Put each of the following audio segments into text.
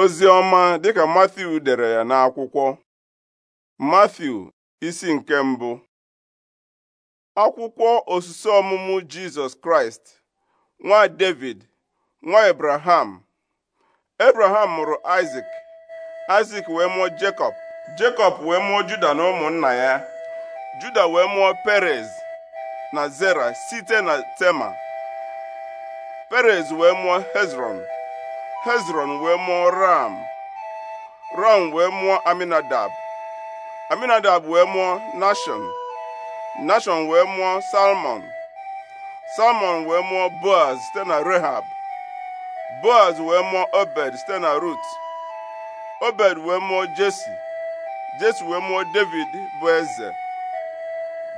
ozi ọma dịka Matthew dere ya n'akwụkwọ Matthew isi nke mbụ akwụkwọ osisi ọmụmụ Jizọs Kraịst nwa David nwa Abraham Abraham mụrụ isak Isaac wee mụọ Jacob Jacob wee mụọ Juda na ụmụnna ya Juda wee mụọ Perez na Zera site na Tema Perez wee mụọ Hezron hezron wee mụọ ram ram wee mụọ aminadab aminadab wee mụọ nashon nashon wee mụọ salmon salmon wee mụọ boaz site na rehab boaz wee mụọ obed site na rut obed wee mụọ jesi jesi wee mụọ david bụ eze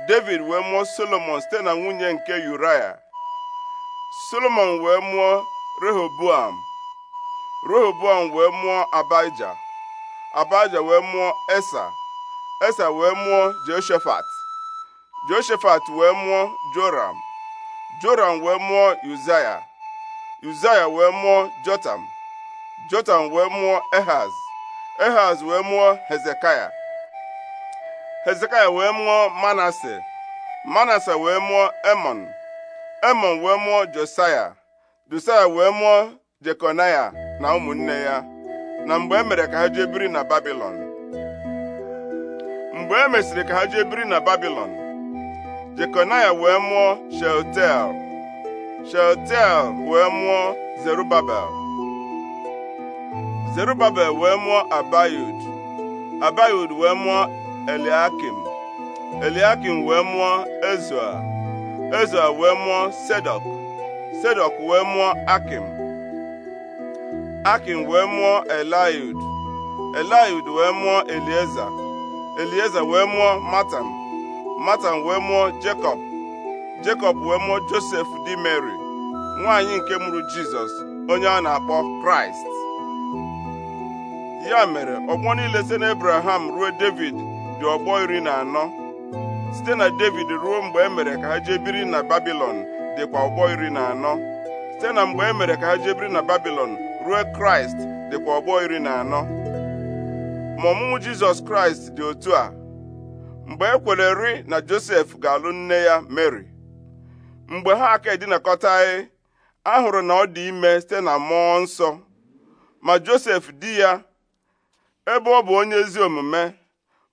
david wee mụọ solomon site na nwunye nke uraya solomon wee mụọ rehoboam Rehoboam wee mụọ Abaija Abaija wee mụọ Esa Esa wee mụọ Jehoshaphat Jehoshaphat wee mụọ Joram Joram wee mụọ Uzaya Uzaya wee mụọ Jotam Jotam wee mụọ Ehaz Ehaz wee mụọ Hezekaya Hezekaya wee mụọ Manase Manase wee mụọ Emon Emon wee mụọ Josaya Josaya wee mụọ Jekonaya na ụmụnne ya na mgbe e mere ka ha jee biri na Babilọn mgbe e mesịrị ka ha jee biri na Babilọn Jekonaya wee mụọ Shealtiel Shealtiel wee mụọ Zerubabel Zerubabel wee mụọ Abayud Abayud wee mụọ Eliakim Eliakim wee mụọ Ezua Ezua wee mụọ Sedok Sedok wee mụọ Akim Akin wee mụọ Eliud Eliud wee mụọ Elieza Elieza wee mụọ Matan Matan wee mụọ Jekọb Jekọb wee mụọ Josef di Mary nwaanyị nke mụrụ Jizọs onye a na-akpọ Kraịst ya mere ọgbọ niile site Abraham ruo David dị ọgbọ iri na anọ site na David ruo mgbe e mere ka ha jee na Babilọn dịkwa ọgbọ iri na anọ site na mgbe e mere ka ha jee na Babilọn ruo kraịst dịkwa ọgbọ iri na anọ ma ọmụmụ jizọs kraịst dị otu a mgbe e ri na josef ga-alụ nne ya mary mgbe ha aka edinakọtaghị a hụrụ na ọ dị ime site na mmụọ nsọ ma josef di ya ebe ọ bụ onye ezi omume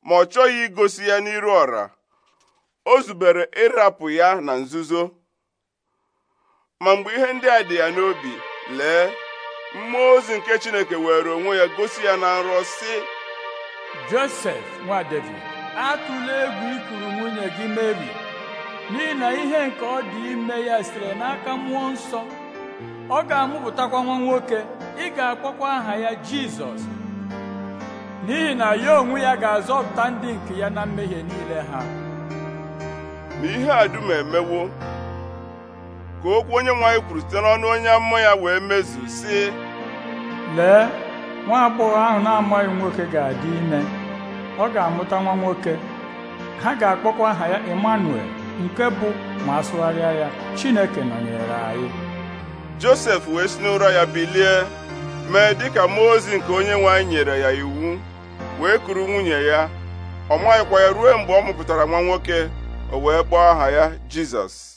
ma ọ chọghị igosi ya n'iru ọra o zubere ịrapụ ya na nzuzo ma mgbe ihe ndị a dị ya n'obi lee mmụọ ozi nke chineke were onwe ya gosi ya na nrọ si josef nwa david atụla egwu ikuru nwunye gị meri n'ihi na ihe nke ọ dị ime ya sitere n'aka mmụọ nsọ ọ ga-amụpụtakwa nwa nwoke ị ga-akpọkwa aha ya jizọs n'ihi na ya onwe ya ga-azọpụta ndị nke ya na mmehie niile ha ma ihe a dum emewo ka okwu onye nwanyị kwuru site n'ọnụ onye amụma ya wee mezu si lee nwa agbọghọ ahụ na-amaghị nwoke ga-adị ime ọ ga-amụta nwa nwoke ha ga-akpọkwa aha ya Emmanuel nke bụ ma asụgharịa ya Chineke nọnyere anyị Josef wee si n'ụra ya bilie mee dịka mmụọ ozi nke onye nwanyị nyere ya iwu wee kuru nwunye ya ọ maghịkwa ya ruo mgbe ọ mụpụtara nwa nwoke o wee kpọọ aha ya Jizọs